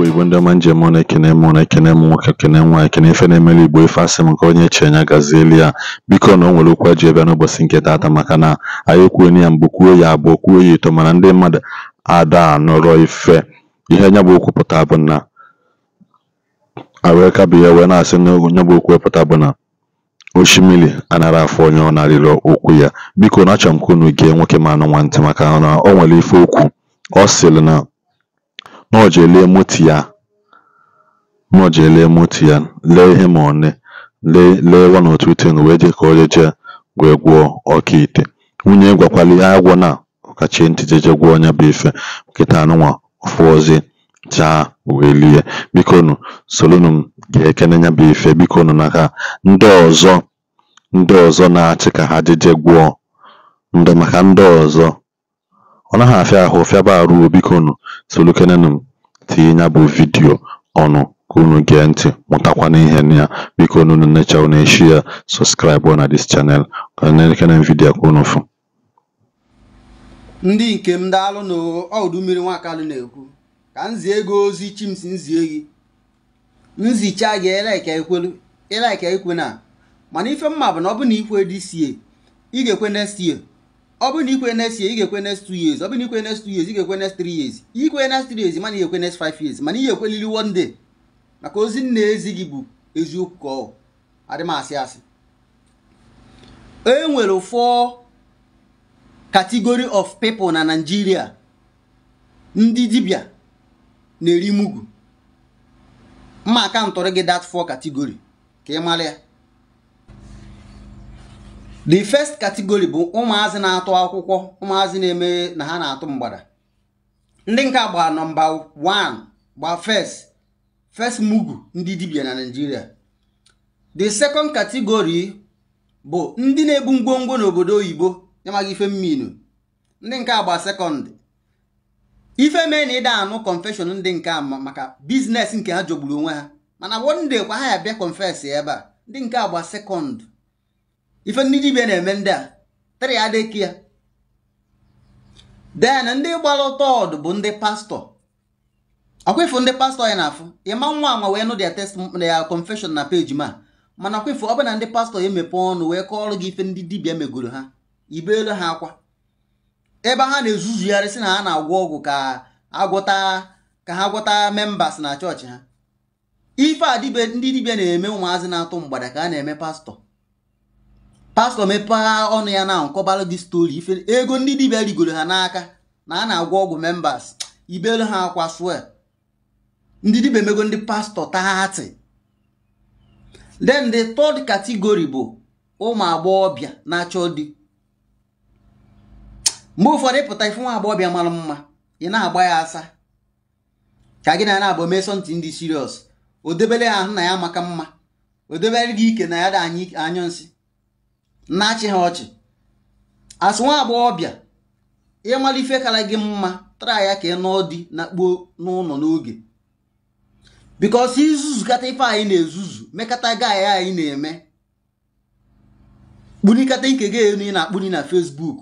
Igbo Igbo ndị ọma njem na ekene m unu ekene m nwoke ekene m nwaanyị kene ife na-emelu Igbo ife asị m nke onye anya gazi elu ya biko na o nwere okwu ji ebe n'ụbọchị nke taata maka na anyị ekwuoni ya mbụ kwuo ya abụọ kwuo ya ito mana ndị mmadụ ada nọrọ ife ihe nya bụ okwu pụta bụ na wee kabụ ya wee na-asị na nya bụ okwu pụta bụ na oshimiri anara afọ onye ọ narịrị okwu ya biko na achọrọ m ka unu gee nwoke ma anụ nwantị maka na o nwere ife okwu ọ sịrị na ọ Nọjelie moti ya nọjelie moti ya lee ihe ma one lee lee one or two thing wee je ka o je wee gwọọ ọkaikpe nwunye gwakwalụ ya na ọkachi ntị jeje gwọọ ọnya bụ ife nkịta anụnwa ọfọzie chaa wee lie bikonu solunu m gee ekene nya bụ ife bikonu na ha ndị ọzọ ndị ọzọ na-achị ka ha jeje gwọọ maka ndị ọzọ ọ naghị afịa ahụ fịaba arụ bikonu Solukenụ m tinye nya bụ vidiyo ọnụ ka unu gee ntị mụtakwa n'ihe na ya bikonu unu necha unu eshia sọskraịbụ na dis chanel ka elekere vidiyo ka unu fụ. ndị nke m daalụ na ọdụ mmiri nwakalụ na-ekwu ka m zie gị ozi chimsi nzie gị nzicha gị ịlaika ekwe na mana ife mma bụ na ọ bụ na ikwe dị sie ị ga-ekwe next year ọ bụrụ na ikwe next ye ị ga-ekwe next two years ọ bụrụ na ikwe next two years ị ga-ekwe next 3 years ikwe next 3 years mana i ga-ekwe next 5 years mana ị ga-ekwelili one day maka ozi nna ezi gị bụ eziokwu ka ọ adị asị asị e nwere of people na Nigeria ndị dibia na-eri mugu mma aka ntọrọ gị dat four katigori ka ị mara ya the first category bụ ụmụazị na-atụ akwụkwọ ụmụazị na-eme na ha na-atụ mgbada ndị nke gba nọmba 1 gba first first mugu ndị dibia na Naịjirịa the second category bụ ndị na-ebu ngwongwo n'obodo oyibo yamaghị ife mminu ndị nke gba sekọndị ife mee na ịda anụ confession ndị nke maka biznes nke ha jọgburu onwe ha mana one kwa ha ya bịa confess ebe a ndị nke agba sekọndị ife ndị dibịa na-eme ndị a tara ya ya den ndị gbara ụtọ bụ ndị pastọ akwefu ndị pastọ ya na-afụ ịma nwa anwa wee nụ dia test ya confeshon na peji ma mana akwefu ọ bụ ndị pastọ emepe ọnụ wee kọọrọ gị ife ndị dibịa megoro ha ibe ha akwa ebe ha na-ezuzugharị sị na ha na-agwọ ọgwụ ka agwọta ka ha gwọta membas na chọọchị ha ife a ndị dibia na-eme ụmụazị na-atụ mgbada ka a na-eme pastọ pastọ mepegha ọnụ ya na nkọbara gị stori ife ego ndị dibịa rigoro ha n'aka na a na-agwọ ọgwụ members ibelu ha akwa swel ndị dibịa emego ndị pastọ taati then the third category bụ ụmụ agbọghọbịa na-achọ di mgbe ụfọdụ ịpụta ife nwa agbọghọbịa mara mma ị na-agba ya asa ka gị na ya na-abụ mesọntị ndị siriọs o debere ya ahụ na ya maka mma o debere gị ike na ya dị anyụ nsị na-achị ha ọchị asị nwa agbọghọbịa ịmala ife kara gị mma tara ya ka ị nọ di na n'ụlọ n'oge bikọsi izuzukata ife anyị na-ezuzu mekata gaị anyị na-eme kpunikata ike gị elu ị na-akpuni na Facebook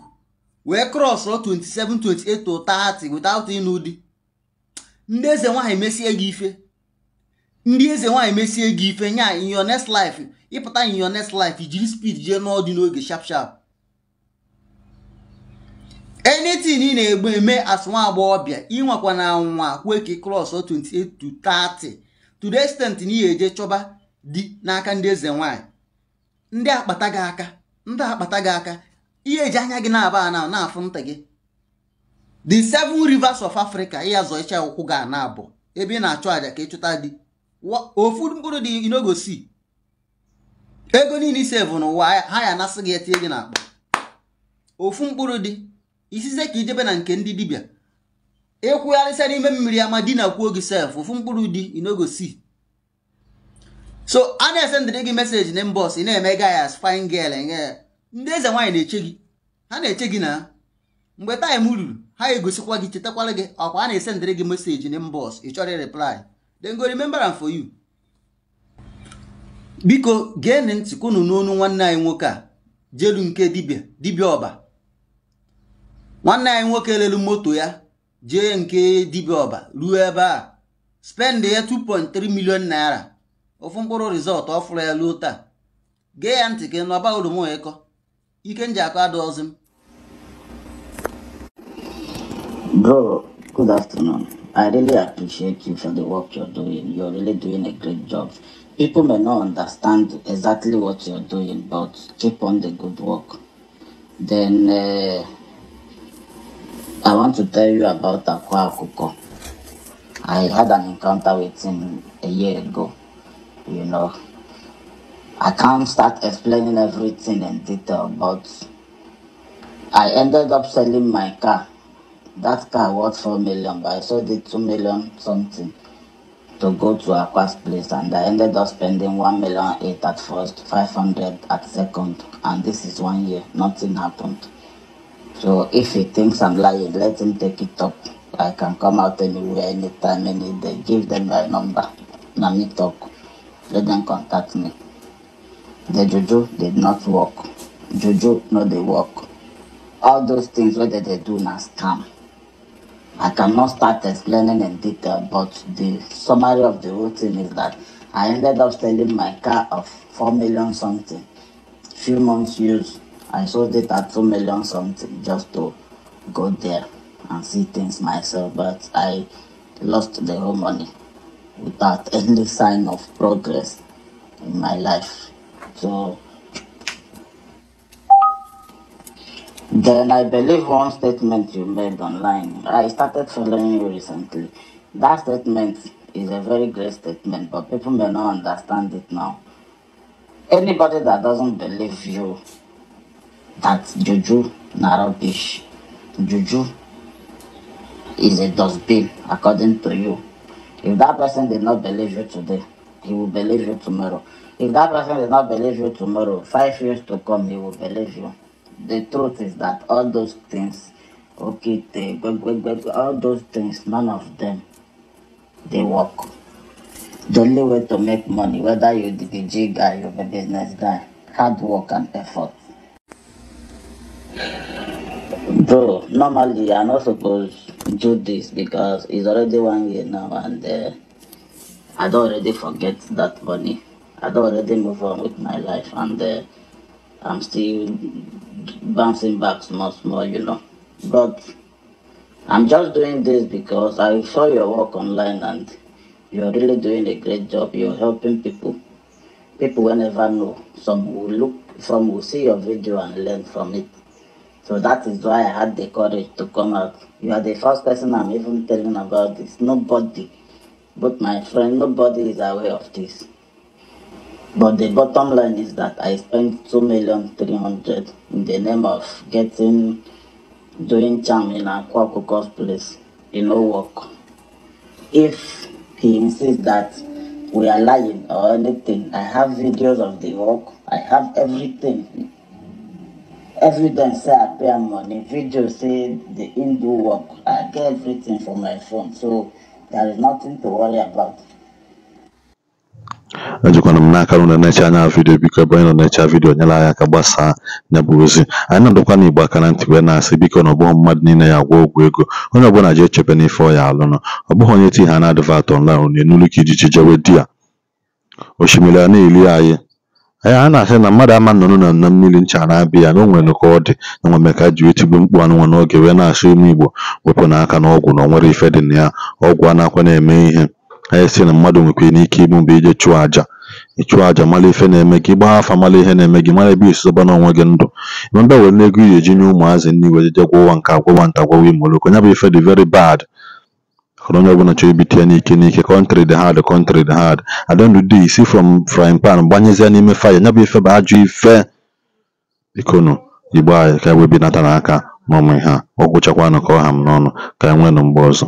wee krọsụ 27 28 30 without ịnụ ndị eze nwaanyị mesie gị ife ndị eze nwaanyị mesie gị ife nya in your next life ịpụta in lif next life jiri speed jee n'ọdị n'oge sharp sharp anything ị na-egbe eme as nwa agbọghọbịa ịnwekwa na nwa kwue ka kros 28 to 30 na ihe eje chọba dị n'aka ndị eze nwaanyị ndị akpata gị aka ndị akpata gị aka ihe eji anya gị na-aba na na-afụ ntị gị the seven rivers of africa ịya zọ icha ụkwụ gị na abụ ebe ị na-achụ aja ka ịchụta di ofu mkpụrụ dị you no go ego niile isevu n'ụwa ha ya anasị gị etinye gị n'akpa ofu mkpụrụ dị isize ka ijebe na nke ndị dibịa ịkwụgharịsịa n'ime mmiri ama di na kwuo gị sef ofu mkpụrụ dị you so a na-esendịrị gị meseji na mbọs ị na-eme gayas fine girl enye ndị eze nwaanyị na-eche gị ha na-eche gị na mgbe taịm ruru ha egosikwa gị chetakwara gị ọkwa a na-esendịrị gị meseji na mbọs ị chọrọ reply go remember am for you biko geenụ ntị unu n'onu nwanne anyị nwoke a jelu nke dibia dibia ọba nwanne anyị nwoke lelu moto ya jee nke dibia ọba ruo ebe a spend ya 2.3 million naira ofu mkpụrụ rizọtụ ọ fụrụ ya ruo taa gee ya ntị ka n'ọba oroma ịkọ ike nji akọ m Good afternoon. I really appreciate you for the work you're doing. You're really doing a great job. People may not understand exactly what you're doing, but keep on the good work. Then uh, I want to tell you about Akwa Akuko. I had an encounter with him a year ago. You know, I can't start explaining everything in detail, but I ended up selling my car That car worth four million, but I sold it two million something to go to Aqua's place, and I ended up spending one million eight at first, five hundred at second, and this is one year. Nothing happened. So if he thinks I'm lying, let him take it up. I can come out anywhere, anytime, any day. Give them my number. Let me talk. Let them contact me. The juju did not work. Juju no they work. All those things whether they do now scam. I cannot start explaining in detail, but the summary of the whole thing is that I ended up selling my car of 4 million something. Few months use, I sold it at 2 million something just to go there and see things myself, but I lost the whole money without any sign of progress in my life. So Then I believe one statement you made online. I started following you recently. That statement is a very great statement, but people may not understand it now. Anybody that doesn't believe you that juju na rubbish, juju is a dustbin according to you. If that person did not believe you today, he will believe you tomorrow. If that person did not believe you tomorrow, five years to come, he will believe you the truth is that all those things, okay, they, all those things, none of them, they work. The only way to make money, whether you're the DJ guy, you're the business guy, hard work and effort. Bro, normally I'm not supposed to do this because it's already one year now and uh, I don't already forget that money. I don't already move on with my life and uh, I'm still bouncing back much more, you know. But I'm just doing this because I saw your work online and you're really doing a great job. You're helping people. People will never know. Some will look from, will see your video and learn from it. So that is why I had the courage to come out. You are the first person I'm even telling about this. Nobody, but my friend, nobody is aware of this. But the bottom line is that I spent two million three hundred in the name of getting doing charm in Akwa Okuko's place. It no work. If he insists that we are lying or anything, I have videos of the work. I have everything. Evidence say I pay money. Video say the Hindu work. I get everything from my phone. So there is nothing to worry about. ejikwana m n'aka nụ unu na-eche anya vidio biko ebe onye nọ na-eche vidiyo nyere anyị aka gbasaa ya bụ ozi anyị na-adọkwana igbo aka na ntị wee na-asị biko na ọ bụghị mmadụ niile ya agwa ogwu ego onye ọbụla ji echebe n'ife ọ ya alụnụ ọ bụghị onye ti ha na-adịvat ọnlaịn unu enulu ka ijiji jewe di ya osimiri a na-eli anyị anyị a na-asị na mmadụ ama nnụnụ na nna mmiri ncha na-abịa ya na o ka ọ dị na nwa meka ji wetigbu mkpu anụnwa n'oge wee na asị ime igbo wepụ n'aka na ọgwụ na o nwere ife dị na ya ọgwụ na akwa na-eme ihe Anyị e sị na mmadụ nwekwara ike igbu mgbe ije chụọ àjà. ịchụọ chụọ àjà mara ife na-eme gị, ị gbaa afa mara ihe na-eme gị, mara ebe ị si onwe gị ndụ. E ị nwere were ego ị eji nye ụmụazị nri were jee ụwa nke agwa ụwa nke a gwọwa imooloko, nya bụ ife dị veri bad. Mana onye ọbụla chọrọ ibite n'ike n'ike, country dị hard country dị hard. At the si isi from frying pan gbanyezie n'ime fire, nya bụ ife bụ ajọ ife. ikonu Igbo anyị ka e wee binatara aka n'ụmụ ihe a, ọ ka ọ ha m n'ọnụ ka anyị e nweenụ mgbe ọzọ.